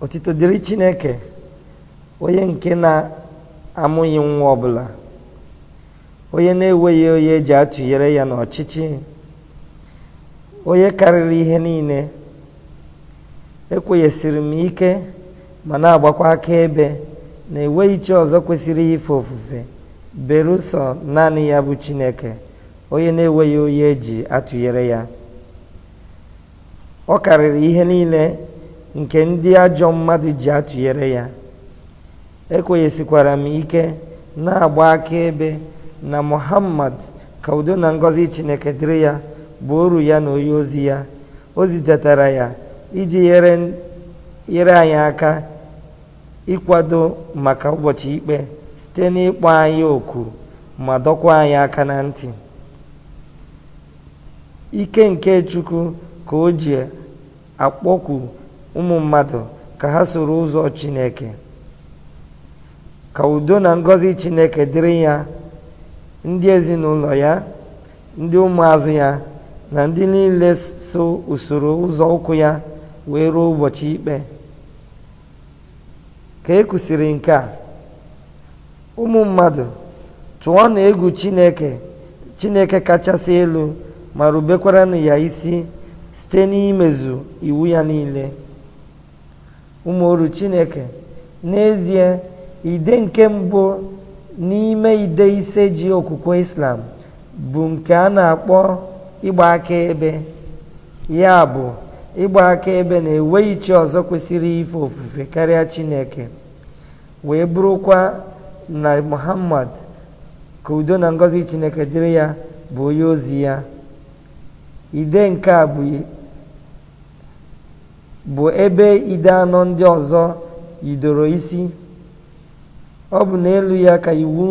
Otito dịrị Chineke onye nke na-amụghị nwa ọbụla onye na-enweghị onye eji atụnyere ya n'ọchịchị onye karịrị ihe niile ekwenyesiri m ike ma na-agbakwa aka ebe na enweghị chi ọzọ kwesịrị ife ofufe berusọ naanị ya bụ Chineke onye na-enweghị onye eji atụnyere ya ọ karịrị ihe niile nke ndị ajọ mmadụ ji atụnyere ya ekwenyesikwara m ike na-agba akaebe na muhammad ka udo na ngọzi chineke dịrị ya bụ oru ya na onye ozi ya o zitetara ya iji nyere anyị aka ịkwado maka ụbọchị ikpe site n'ịkpọ anyị oku ma dọkwa anyị aka na ntị ike nke chukwu ka o ji akpọkwu ụmụ mmadụ ka ha soro ụzọ chineke ka udo na ngọzi chineke dịrị ya ndị ezinụlọ ya ndị ụmụazụ ya na ndị niile so usoro ụzọ ụkwụ ya wee ruo ụbọchị ikpe ka e kwụsịrị nke a ụmụ mmadụ tụọ na egwu chineke chineke kachasị elu ma rubekwara na ya isi site n'imezu iwu ya niile ụmụoru chineke n'ezie ide nke mbụ n'ime ide ise ji okwukwe islam bụ nke a na-akpọ ịgba akaebe ya bụ ịgba akaebe na-enweghị chi ọzọ kwesịrị ife ofufe karịa chineke wee bụrụkwa na muhammad ka udo na ngọzi chineke dịrị ya bụ onye ozi ya ide nke bụ bụ ebe ide anọ ndị ọzọ yidoro isi ọ bụ n'elu ya ka iwu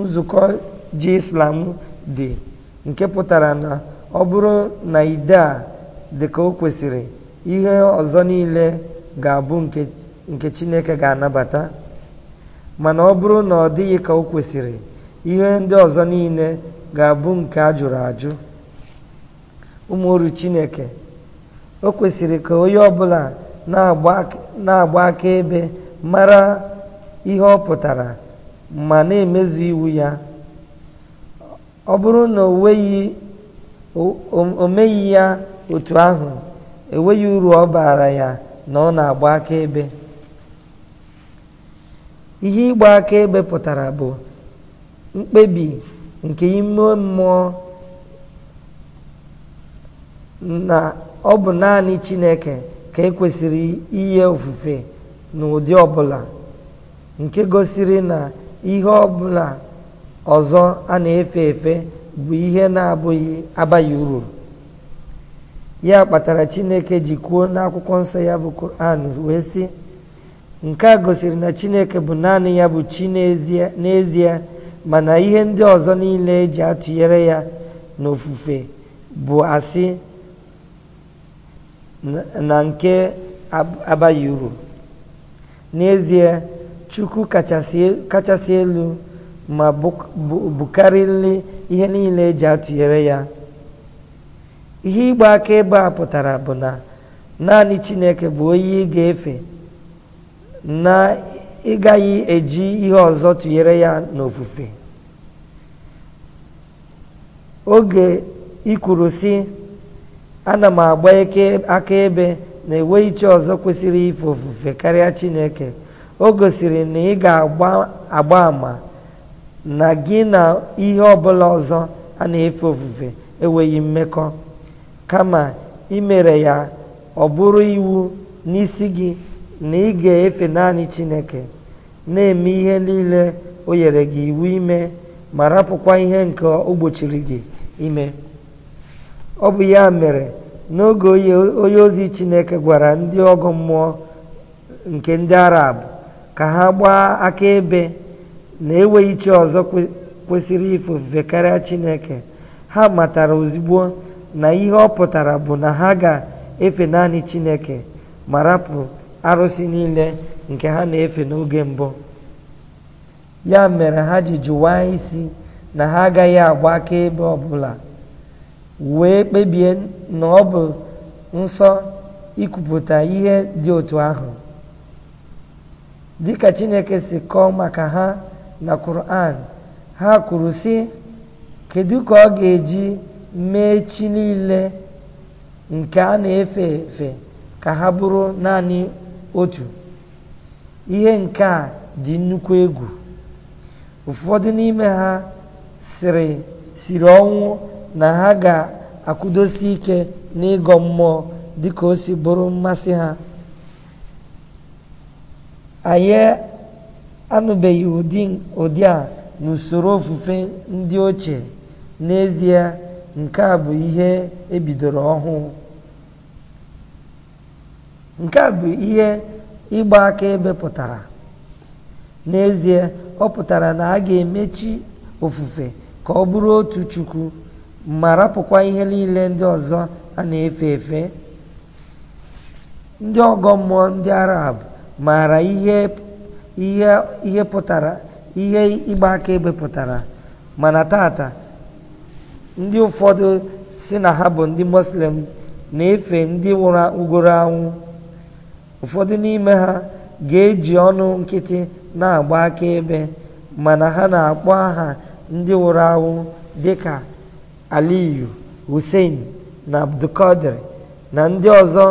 nzukọ ji islam dị nke pụtara na ọ bụrụ na ide a dịka ka o kwesịrị ihe ọzọ niile ga-abụ nke chineke ga-anabata mana ọ bụrụ na ọ dịghị ka o kwesịrị ihe ndị ọzọ niile ga-abụ nke a jụrụ ajụ ụmụ chineke o kwesịrị ka onye ọ bụla na-agba akaebe mara ihe ọ pụtara ma na-emezu iwu ya ọ bụrụ na o meghị ya otu ahụ enweghị uru ọ baara ya na ọ na-agba akaebe ihe ịgba akaebe pụtara bụ mkpebi nke ime mmụọ na ọ bụ naanị Chineke ka e kwesịrị inye ofufe n'ụdị ọbụla nke gosiri na ihe ọbụla ọzọ a na-efe efe bụ ihe na-abụghị abaghị uru ya kpatara Chineke ji kwuo n'akwụkwọ nsọ ya bụ Koran wee sị nke a gosiri na Chineke bụ naanị ya bụ chi n'ezie mana ihe ndị ọzọ niile eji atụnyere ya n'ofufe bụ asị na nke abaghị uru n'ezie chukwu kachasị elu ma bukarịrị ihe niile eji atụnyere ya ihe ịgba aka ebe a pụtara bụ na naanị chineke bụ onye ị ga-efe na ị gaghị eji ihe ọzọ tụnyere ya n'ofufe oge ikwuru sị ana m agba akaebe na enweghị chi ọzọ kwesịrị ife ofufe karịa chineke o gosiri na ị ga-agba agba ama na gị na ihe ọbụla ọzọ a na-efe ofufe enweghị mmekọ kama imere ya ọ bụrụ iwu n'isi gị na ị ga-efe naanị chineke na-eme ihe niile o nyere gị iwu ime ma rapụkwa ihe nke o gị ime ọ bụ ya mere n'oge onye ozi chineke gwara ndị ọgọ mmụọ nke ndị arab ka ha gbaa akaebe na enweghị chi ọzọ kwesịrị ifufe karịa chineke ha matara ozugbo na ihe ọ pụtara bụ na ha ga-efe naanị chineke ma rapụ arụsị niile nke ha na-efe n'oge mbụ ya mere ha ji jụwa isi na ha agaghị agba akaebe ọbụla wee kpebie na ọ bụ nsọ ikwupụta ihe dị otu ahụ dịka chineke si kọọ maka ha na kuran ha kwuru sị kedu ka ọ ga-eji mee chi niile nke a na-efe efe ka ha bụrụ naanị otu ihe nke a dị nnukwu egwu ụfọdụ n'ime ha siri siri ọnwụ na ha ga-akwụdosi ike n'ịgọ mmụọ dịka o si bụrụ mmasị ha anyị anụbeghị ụdị a n'usoro ofufe ndị ochie n'ezie nke a bụ ihe ebidoro ọhụụ nke a bụ ihe ịgba ebe pụtara n'ezie ọ pụtara na a ga-emechi ofufe ka ọ bụrụ otu chukwu marapụkwa rapụkwa ihe niile ndị ọzọ a na-efe efe ndị ọgọ mmụọ ndị arab maara ihe ihe pụtara ihe ịgba akaebe pụtara mana tata ndị ụfọdụ si na ha bụ ndị muslim na-efe ndị nwụrụ ugoro anwụ ụfọdụ n'ime ha ga-eji ọnụ nkịtị na-agba aka ebe mana ha na-akpọ aha ndị nwụrụ anwụ dịka aliyu hussein na abdulkadir na ndị ọzọ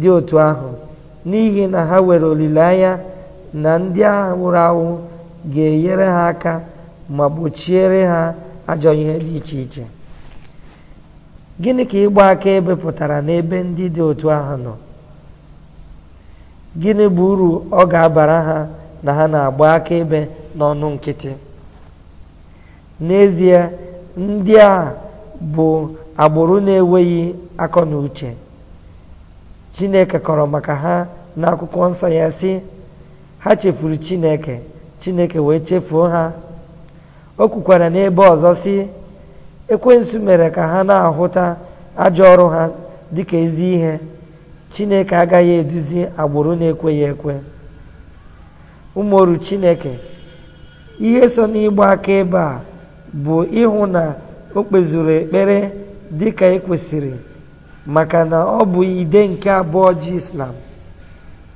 dị otu ahụ n'ihi na ha nwere olileanya na ndị agha wụrụ awụ ga-enyere ha aka ma gbochiere ha ajọ ihe dị iche iche gịnị ka ịgba aka ebe pụtara n'ebe ndị dị otu ahụ nọ gịnị bụ uru ọ ga-abara ha na ha na-agba akaebe n'ọnụ nkịtị n'ezie ndị a bụ agbụrụ na-enweghị akọ na uche chineke kọrọ maka ha n'akwụkwọ nsọ ya si. ha chefuru chineke chineke wee chefuo ha o kwukwara n'ebe ọzọ sị ekwensu mere ka ha na-ahụta ajọ ọrụ ha dịka ezi ihe chineke agaghị eduzi agbụrụ na-ekweghị ekwe ụmụoru chineke ihe so n'ịgba akaebe a bụ ịhụ na o kpezuru ekpere dị dịka ekwesịrị maka na ọ bụ ide nke abụọ ji islam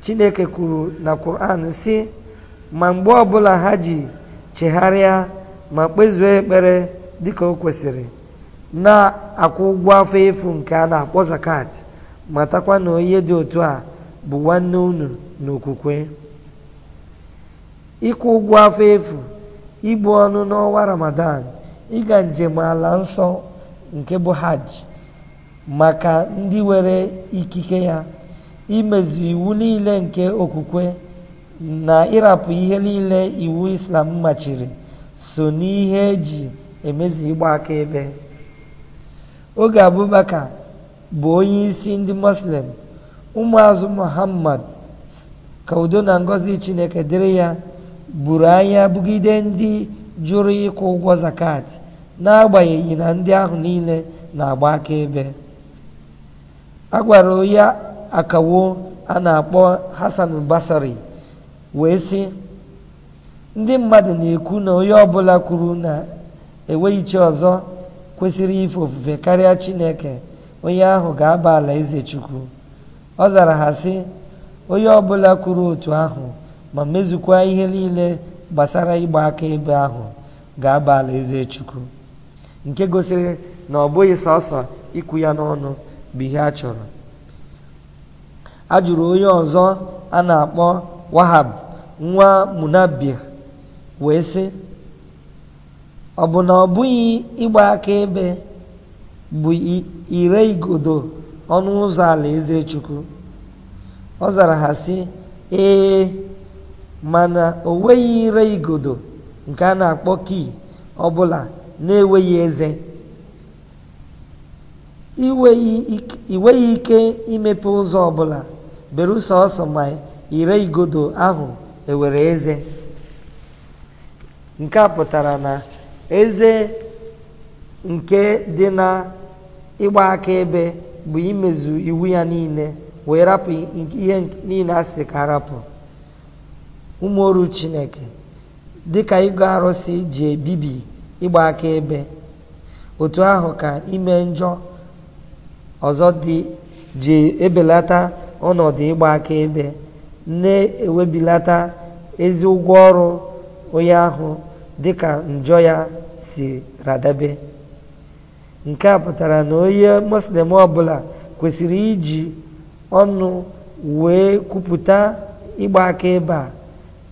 chineke kwuru na quran sị ma mgbe ọbụla ha ji chegharịa ma kpezuo ekpere dị ka o kwesịrị na-akwụ ụgwọ afọ efu nke a na-akpọ zakat matakwa na onye dị otu a bụ nwanne unu n'okwukwe ịkwụ ụgwọ afọ efu ibu ọnụ n'ọnwa ramadan ịga njem ala nsọ nke bụ hajj maka ndị nwere ikike ya imezu iwu niile nke okwukwe na ịrapụ ihe niile iwu islam machiri so n'ihe eji emezu ịgba aka ebe. oge abubakar bụ onye isi ndị muslim ụmụazụ muhammad ka na Ngozi chineke dịrị ya buru anya bugide ndị jụrụ ịkwụ ụgwọ zakat n'agbanyeghị na ndị ahụ niile na-agba akaebe a gwara onye akawo a na-akpọ hasan basari wee sị ndị mmadụ na-ekwu na onye ọbụla kwuru na enweghị ọzọ kwesịrị ife ofufe karịa chineke onye ahụ ga-aba ala eze chukwu ọ zara ha sị onye ọbụla kwuru otu ahụ ma mezukwa ihe niile gbasara ịgba akaebe ahụ ga-aba alaeze chukwu nke gosiri na ọ bụghị sọsọ ikwu ya n'ọnụ bụ ihe a chọrọ a jụrụ onye ọzọ a na-akpọ wahab nwa munabir wee sị ọ bụ na ọ bụghị ịgba ebe bụ ire igodo ọnụ ụzọ alaeze chukwu ọ zara ha sị ee mana o nweghị ire igodo nke a na-akpọ kii ọbụla na-enweghị eze ị ike imepe ụzọ ọbụla ụsọ ọsọ ma ire igodo ahụ ewere eze nke a pụtara na eze nke dị na ịgba akaebe bụ imezu iwu ya niile wee rapụ ihe niile a sị ka rapụ ụmụ chineke dịka ịgụ arụsị ji ebibi ịgba akaebe otu ahụ ka ime njọ ọzọ dị ji ebelata ọnọdụ ịgba akaebe na-ewebilata ezi ụgwọ ọrụ onye ahụ dịka njọ ya si radabe nke a pụtara na onye muslim ọbụla kwesịrị iji ọnụ wee kwupụta ịgba akaebe a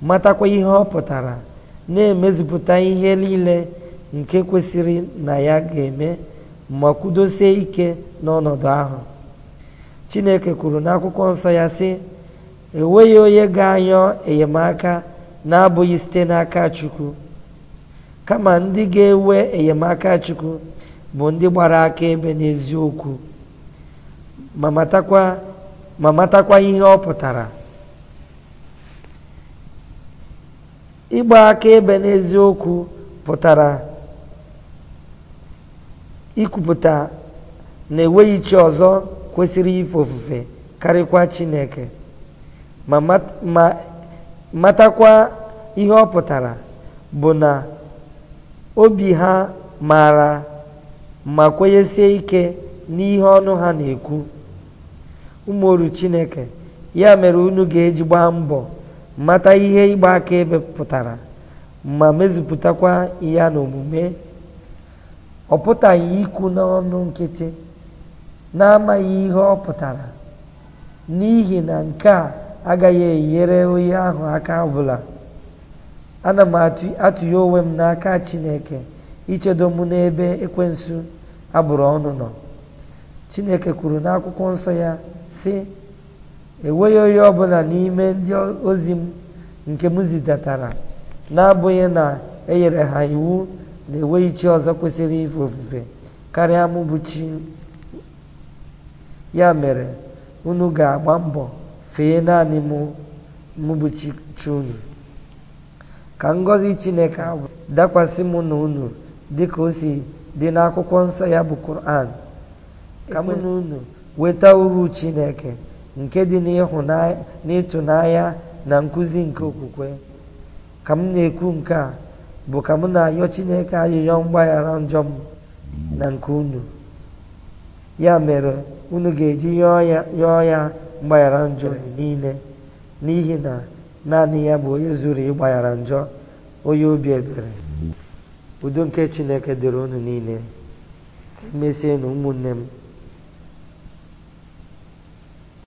matakwa ihe ọ pụtara na-emezipụta ihe niile nke kwesịrị na ya ga-eme ma kwudosie ike n'ọnọdụ ahụ chineke kwuru n'akwụkwọ nsọ ya sị enweghị onye ga-anyọ enyemaka na-abụghị site n'aka chukwu kama ndị ga-ewe enyemaka chukwu bụ ndị gbara akaebe n'eziokwu ma matakwa ihe ọ pụtara ịgba aka ebe n'eziokwu pụtara ikwupụta na enweghị chi ọzọ kwesịrị ife ofufe karịkwa chineke ma matakwa ihe ọ pụtara bụ na obi ha maara ma kwenyesie ike n'ihe ọnụ ha na-ekwu ụmụ chineke ya mere unu ga-eji gbaa mbọ mata ihe ịgba akaebe pụtara ma mezupụtakwa ya n'omume ọ pụtaghị ikwu n'ọnụ nkịtị n'amaghị ihe ọ pụtara n'ihi na nke a agaghị enyere onye ahụ aka ọbụla ana m atụghe onwe m n'aka chineke ichedo m n'ebe ekwensu agbụrụ ọnụ nọ chineke kwuru n'akwụkwọ nsọ ya sị enweghị onye ọbụla n'ime ndị ozi m nke m zidatara na-abụghị na e ha iwu na enweghị chi ọzọ kwesịrị ife ofufe karịa mụ chi ya mere unu ga-agba mbọ fee naanị mụ chi unu ka ngọzi chineke dakwasị mụ na unu ka o si dị n'akwụkwọ nsọ ya bụ kur'an ka mụ na unu weta uru chineke nke dị n'ịtụnanya na nkụzi nke okwukwe ka m na-ekwu nke a bụ ka m na-ayọ Chineke ayịyọ mgbaghara njọ m na nke unu ya mere unu ga-eji yọọ ya mgbaghara njọ niile n'ihi na naanị ya bụ onye zuru ịgbaghara njọ onye obi ebere udo nke Chineke dịrị unu niile ka emesie na ụmụnne m